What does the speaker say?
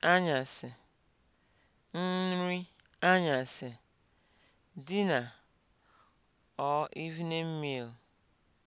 anyasị, nri anyasị, dinner or evening meal.